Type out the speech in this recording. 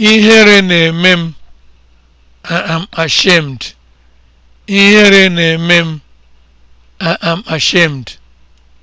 Ihere na-eme m. I am ashamed. na-eme m. am ashamed.